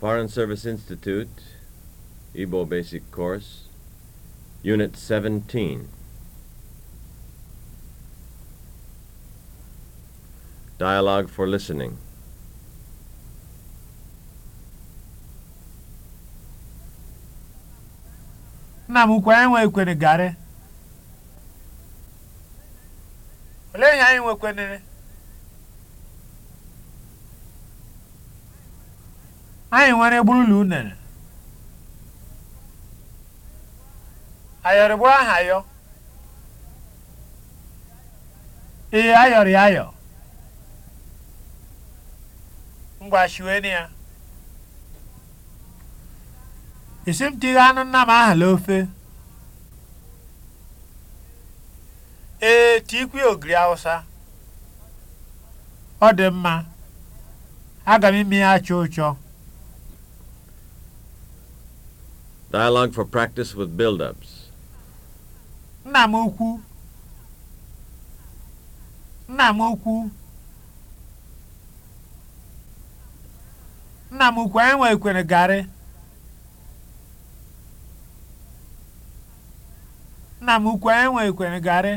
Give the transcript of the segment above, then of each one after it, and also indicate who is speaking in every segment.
Speaker 1: Foreign Service Institute, Igbo Basic Course, Unit 17. Dialogue for Listening.
Speaker 2: nna m enwe anyị nwe ekwere garị olee ihe Anyị nwere gburula unere. Ayọrị gburu aha yọ. Ee, ayọrị ayọ. Mgbashiweni ya. Isi m tighe anụ nna m aha n'ofe. Ee, tikwe ogiri Awụsa. Ọ dị mma. Aga m ime ya achọ ụchọ.
Speaker 1: Dialogue for practice with build-ups.
Speaker 2: Nna m ukwu. Nna m ukwu. Nna m ukwu anyị nwekwere garị. Nna m ukwu anyị nwekwere garị.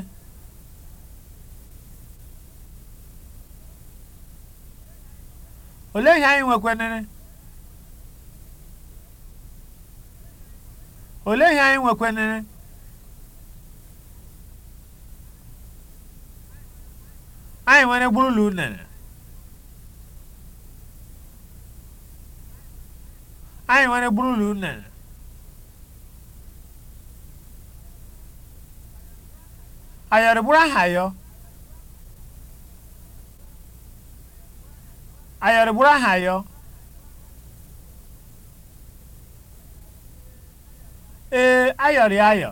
Speaker 2: Olee ihe anyị nwekwenere? olee ihe anyị nwekwenere anyị nwere gburula unere anyị nwere gburula unere ayọrọ bụrụ aha yọ ayọrọ bụrụ aha yọ ee eh, ayọrị ayọ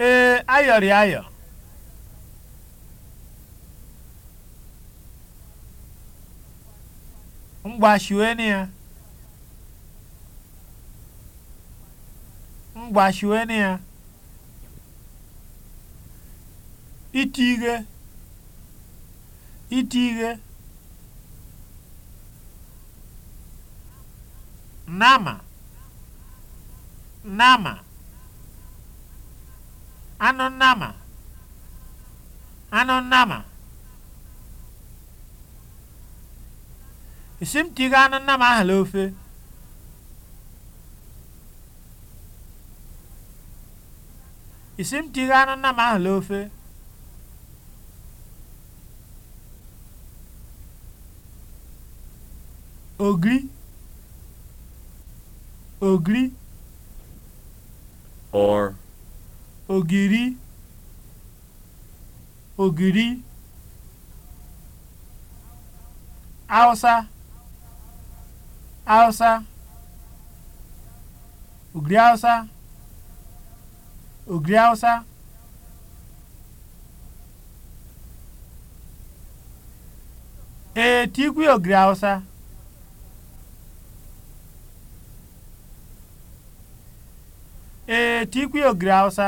Speaker 2: ee eh, ayọrị ayọ mgbashiweni ya mgbashiweni ya iti ihe iti ihe nama nama anụ nama anụ nama esi m tiga anụ nama ahụ n'ofe m tiga anụ nama ahụ n'ofe ogiri ogiri or ogiri ogiri Hausa Hausa ogiri Hausa ogiri Hausa ee tikwi ogiri Hausa ee eh, tikwi ogiri Hausa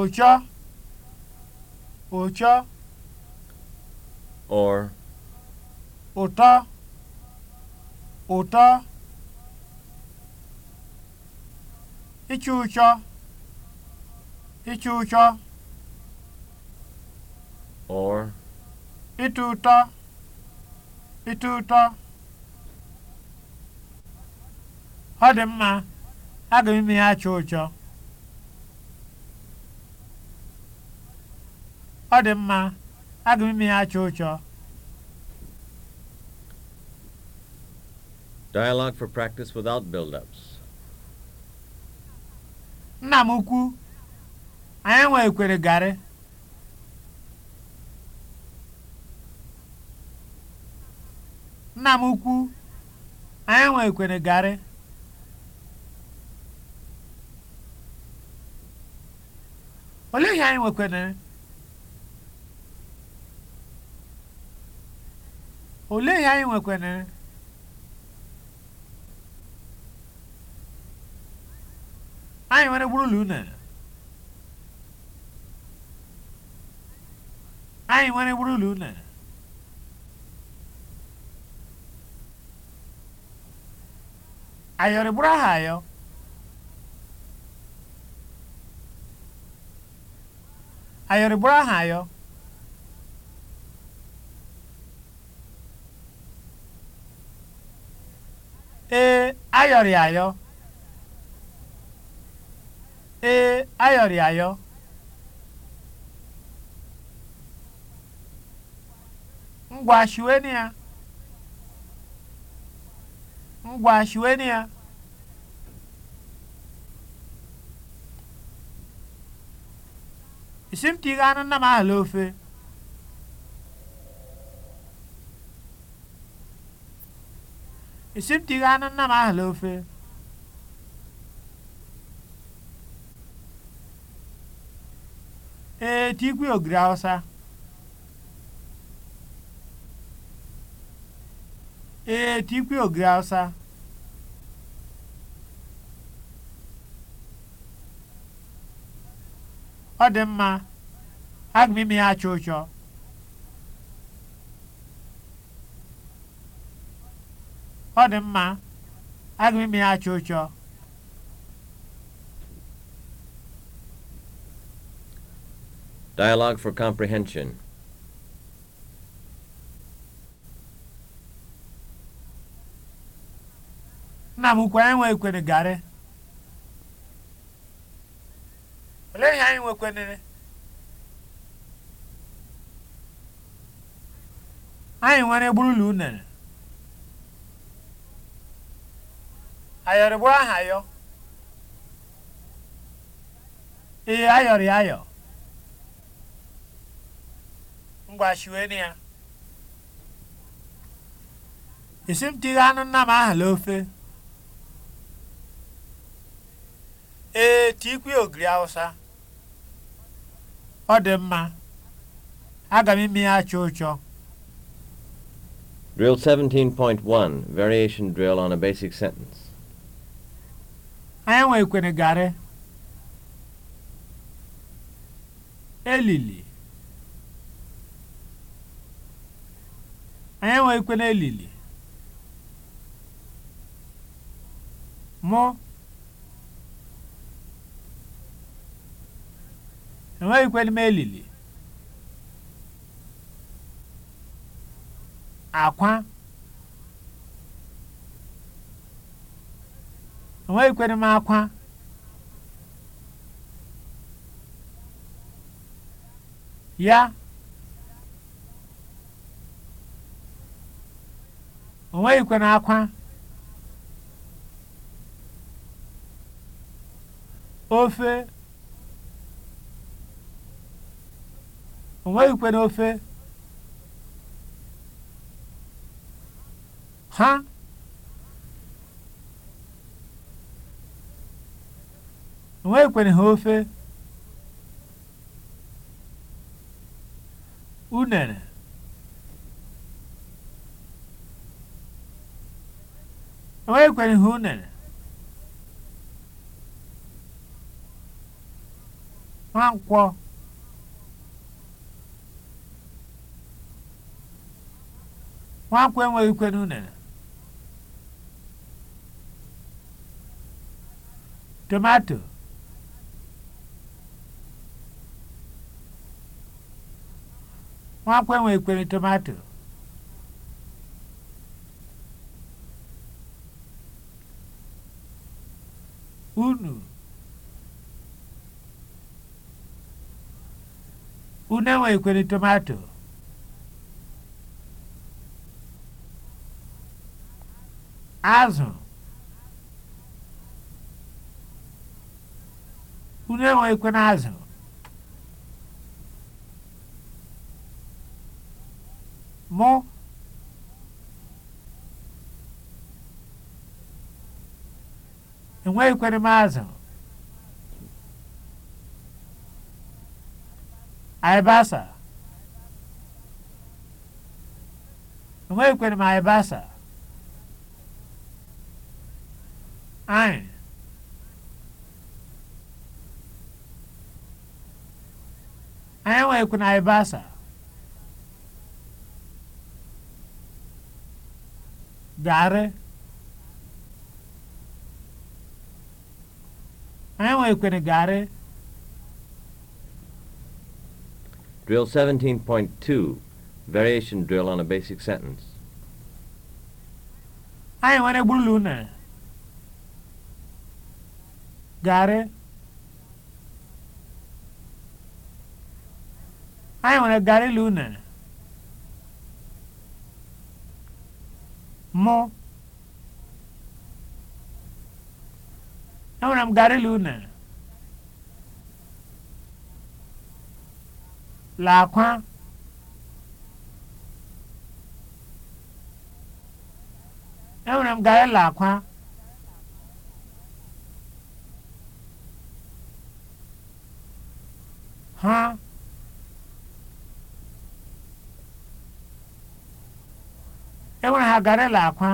Speaker 2: ụchọ ụchọ or ụtọ ụtọ ịchụ ụchọ ịchụ ụchọ or ịtụ ụtọ ịtụ ụtọ ọ dị mma aga m ya achọ ụchọ mma aga m ụchọ
Speaker 1: Dialogue for practice without build-ups.
Speaker 2: Nna m ukwu, anyị nwe ekwere garị. garị. olee ihe anyị nwekwanere olee ihe anyị nwekwanere anyị nwere gburugburu unere anyị nwere gburugburu unere ayọrịgburu aha ayọ ayọrị bụrụ aha eh, ayọ ee eh, ayọrị ayọ ee ayọrị ayọ ngwa shiweni ya ngwa shiweni ya Isimtighi anụ nnam ahụ ofe Isimtighi na ofe ee tikwi ogiri Hausa ogiri Hausa ọ dị mma aga m ime ya acha ụchọ ọ dị mma aga m ime ya acha ụchọ
Speaker 1: Dialogue for comprehension.
Speaker 2: Nna m ukwu anyị nwe Ehi ihe anyị nwekwenere anyị nwere ụlọ unere ayọrịgburu aha yọ ee ayọrị ayọ ngwashiweni ya esi m tighe anụ nna m aha ofe ee tikwe ogiri awụsa ọ dị mma aga m ime ya achọ ụchọ
Speaker 1: Drill 17.1 Variation Drill on a Basic Sentence
Speaker 2: Anyị ikwene garị elili anyị ikwene elili mụ enweghịkwa m elili akwa enweghịkwere m akwa ya onweghịkwere akwa ofe o nweghịkwe n'ofe ha o nweghịkwere ha ofe unere o nweghịkwere ha unere nkwọ nwankwo enweghị ikwe n'unene tomato nwankwo enweghị ikwe na tomato unu unu enweghị ikwe tomato azụ unu enweghịkwana azụ mụ enweghịkwere m azụ aịbasa enweghịkwere m aịbasa anyị anyị enweghịkwana ibasa garị anyị enweghịkwana garị
Speaker 1: Drill 17.2, variation drill on a basic sentence.
Speaker 2: Anyị nwere gburu ụnụ. Gari anyị nwere gari ilu unere mụ enwere m gari ilu lakwa enwere m gari lakwa ha enwere ha garela akwa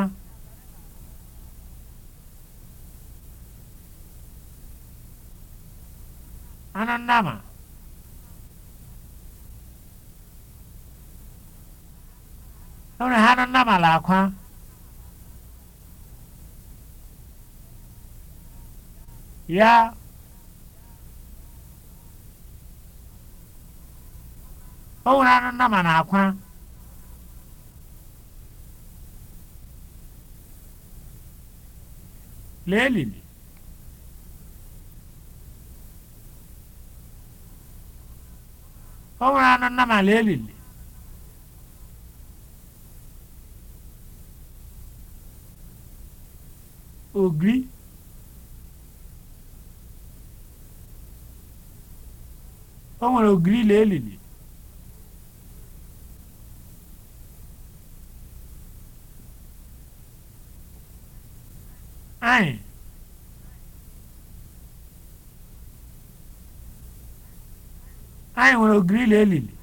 Speaker 2: anụ nnama enwere ha anụ nnama la akwa ya Ọwụrụ nwere anụ nnama na akwa lee elili o nwere anụ nnama lee elili ogri o nwere ogiri lee elili anyị anyị nwere ogirili elili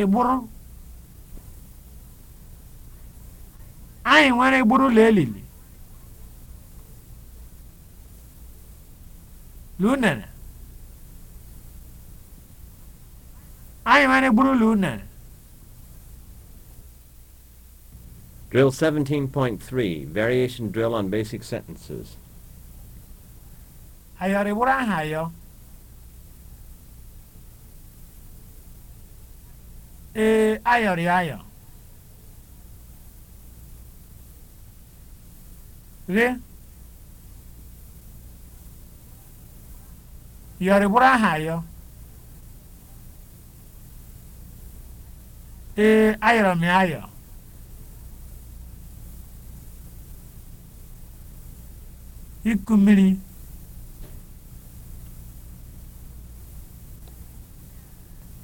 Speaker 2: ịgbụrụ e anyị nwere ịgbụrụ ụlọ elili lunere anyị nwere ịgbụrụ ụlọ unere
Speaker 1: Drill 17.3, variation drill on basic sentences.
Speaker 2: Ayari burahayo. Eh, ayori ayo. Gị? Yori burahayo. Eh, ayoro mi ayo. iku mmiri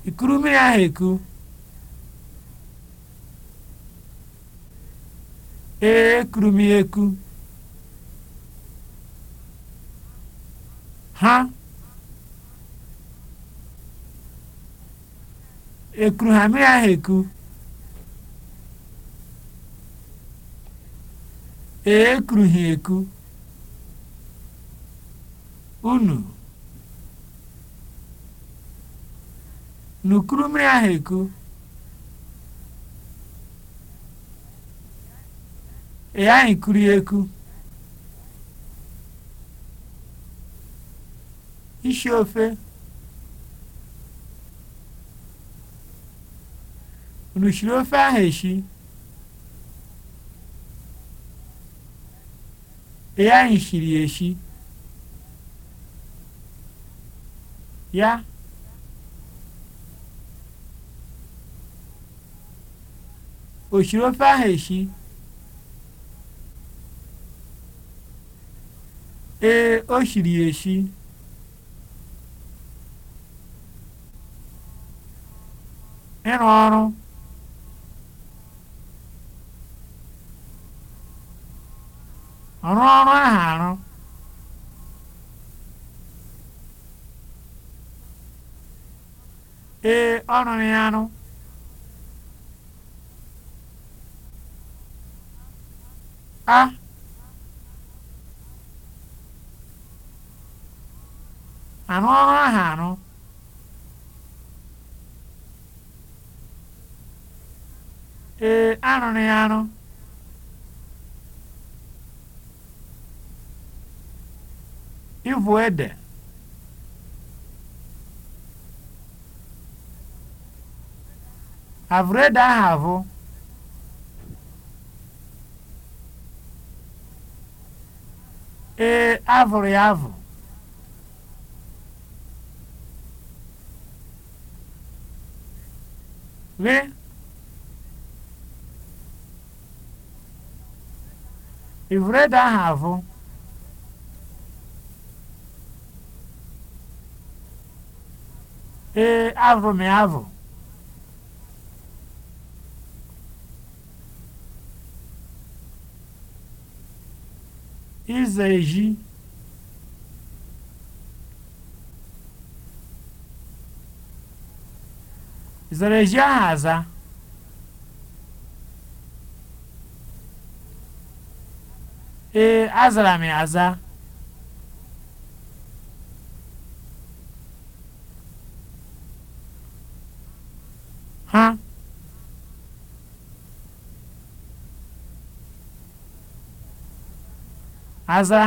Speaker 2: ikuru mmiri ahụ eku ee ekuru m ya eku ha ekuru ha mmiri ahụ eku ee ekuru ha eku unu n'ukuru mmiri ahụ eku ị ghaghị eku isi ofe unu shiri ofe ahụ eshi ị ghaghị shiri ya o shiri ofe ahụ eshi ee o shiri ya eshi ịrụ ọrụ ọrụ ọrụ ahụ arụ ee ọ ya anụ a anụ ọrụ ahụ anụ ee anụrụ ya anụ ịvụ ede I've read I Ee, ahụrụ ya avụ. Gị? read I Ee, avụrụ m ya avụ. ahụ e, aza. ee azara m aza aza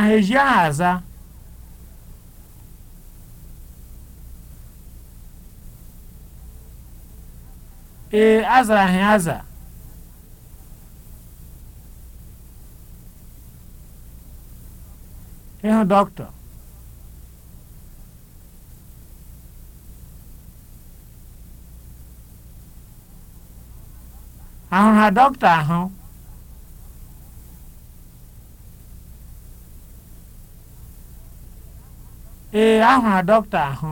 Speaker 2: ee azara ha aza ịhụ dọkịta ahụ ha dọkịta ahụ ee ahụrụ dọkịta ahụ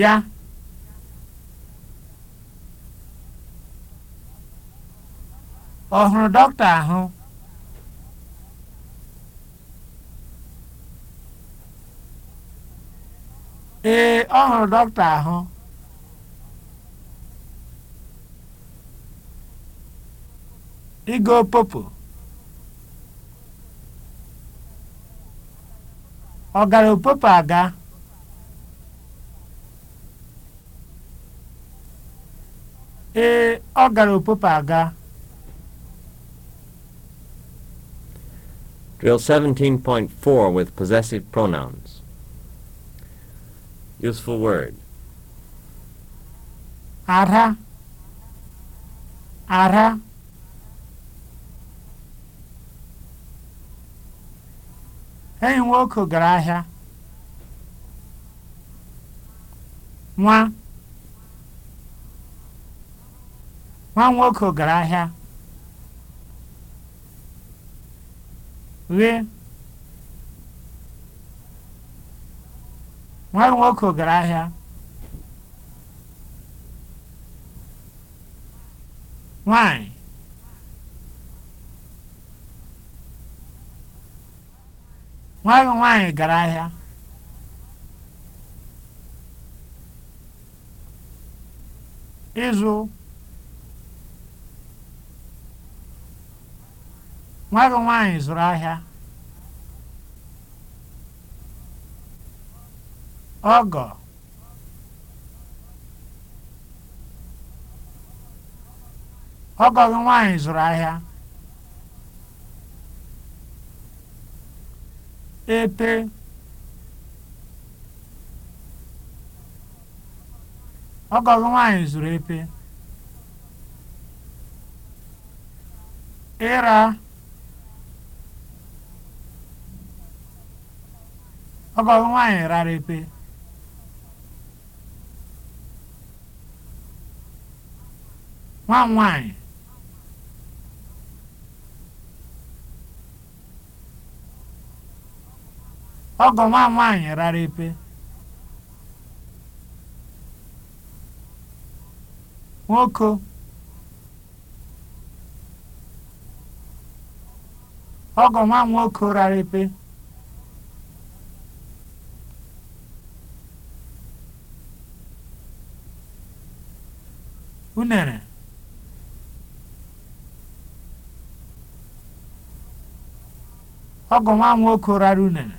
Speaker 2: ya ọ hụrụ dọkịta ahụ ee ọ hụrụ dọkịta ahụ igo popo ọ gara opopo aga ee ọ gara opopo aga
Speaker 1: Drill 17.4 with possessive pronouns. Useful word.
Speaker 2: Ara. Ara. enyi nwoke gara ahịa nwa nwa nwoke gara ahịa ghe nwa nwoke gara ahịa nwanyị nwa gị nwaanyị gara ahịa ịzụ nwa gị nwaanyị zụrụ ahịa ọgọ ọgọ gị nwaanyị zụrụ ahịa epe ọgọ nwanyị zuru zụrụ epe ịra ọgọ nwanyị nwaanyị rara epe nwa m nwaanyị ọgọ nwa rara epe nwoke ọgọ nwa nwoke rara epe unere ọgọ nwa m nwoke rara unere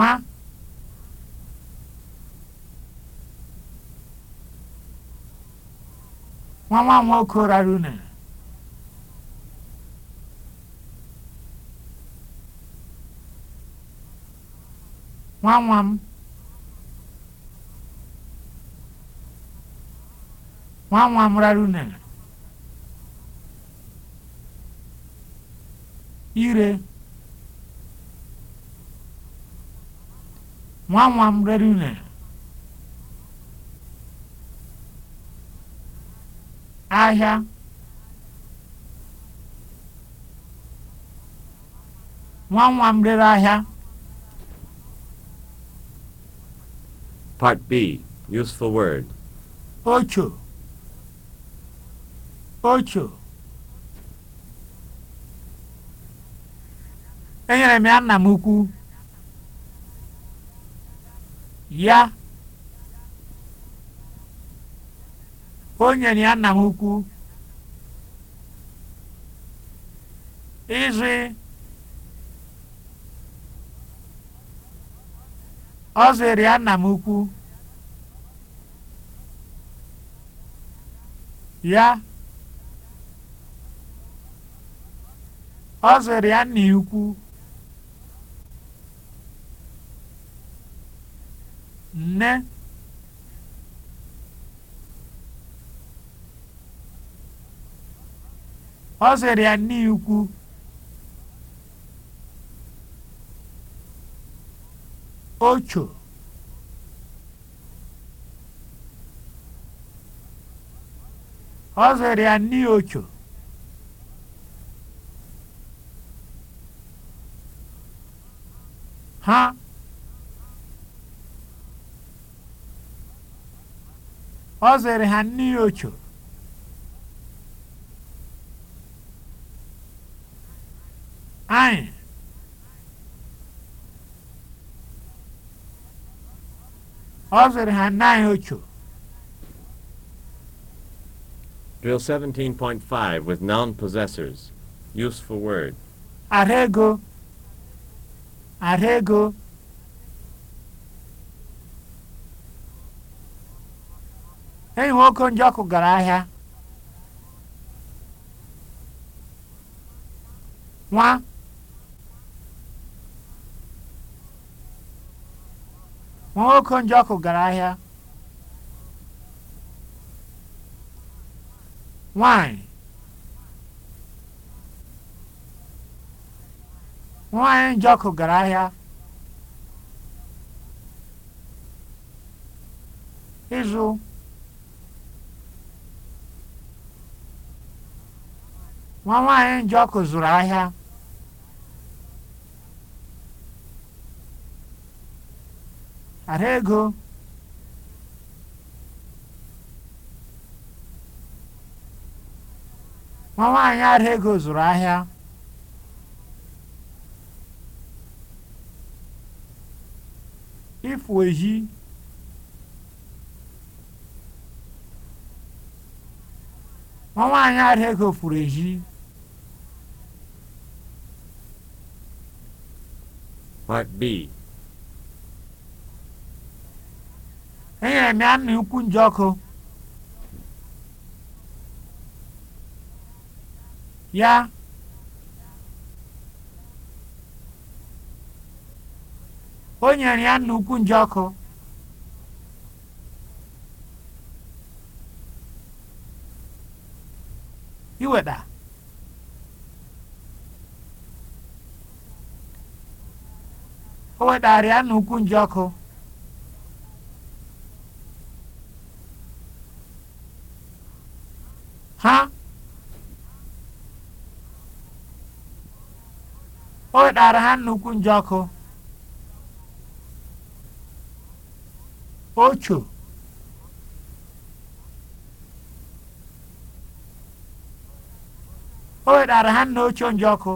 Speaker 2: nwa nwa nwa nwoke rara unere nwa nwa m nwa nwa m rara unere ire nwa nwa m ahịa nwa nwa rere ahịa
Speaker 1: Part B, useful word.
Speaker 2: Ocho. Ocho. Enyere m ya nna m ukwu. ya o nyere ya nna m ukwu ịzụ ọ ya nna m ukwu ya ọ ya nna ya ukwu nne ọ sịrị ya nne ocho ọ sịrị ya ha Ọ ha mmiri ocho. Anyị. Ọ zere ha nnaanyị ocho.
Speaker 1: Drill 17.5 with noun possessors. Useful word.
Speaker 2: Arego. Arego. enyi nwoke okonjo ọkụ gara ahịa nwa nwa okonjo ọkụ gara ahịa nwanyị nwanyị Njọkụ gara ahịa ịzụ nwa nwaanyị ọkụ zụrụ ahịa ara ego nwa nwaanyị ara ego zụrụ ahịa ifu ehi nwa nwaanyị ara ego furu ehi Part B. Enyere m ya nje ọkụ. Ya. O nyere ya nna ukwu nje Iweta. o wetara ya n'ukwu ọkụ, ha o wetara ha n'ukwu ọkụ, ocho o wetara ha n'ocho ọkụ.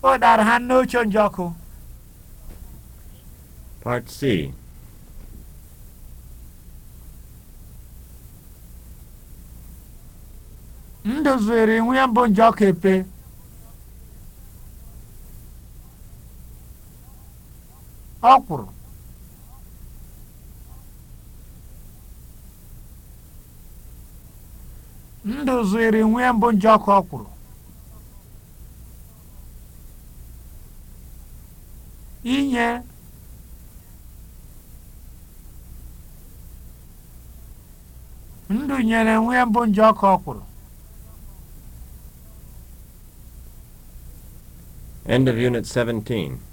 Speaker 2: ọ dara ha n'oche njọkụ
Speaker 1: Part C
Speaker 2: ndụ zụrụ inwe mbụ bụ njọkụ epe ọkwụrụ ndụ zụrụ inwe ya bụ njọkụ ọkwụrụ inye ndụ nyere nwa mbụ nje ọkụ ọkwụrụ
Speaker 1: End of Unit 17